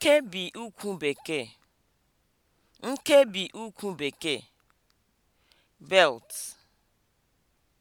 nkebi Bekee Bekee) belt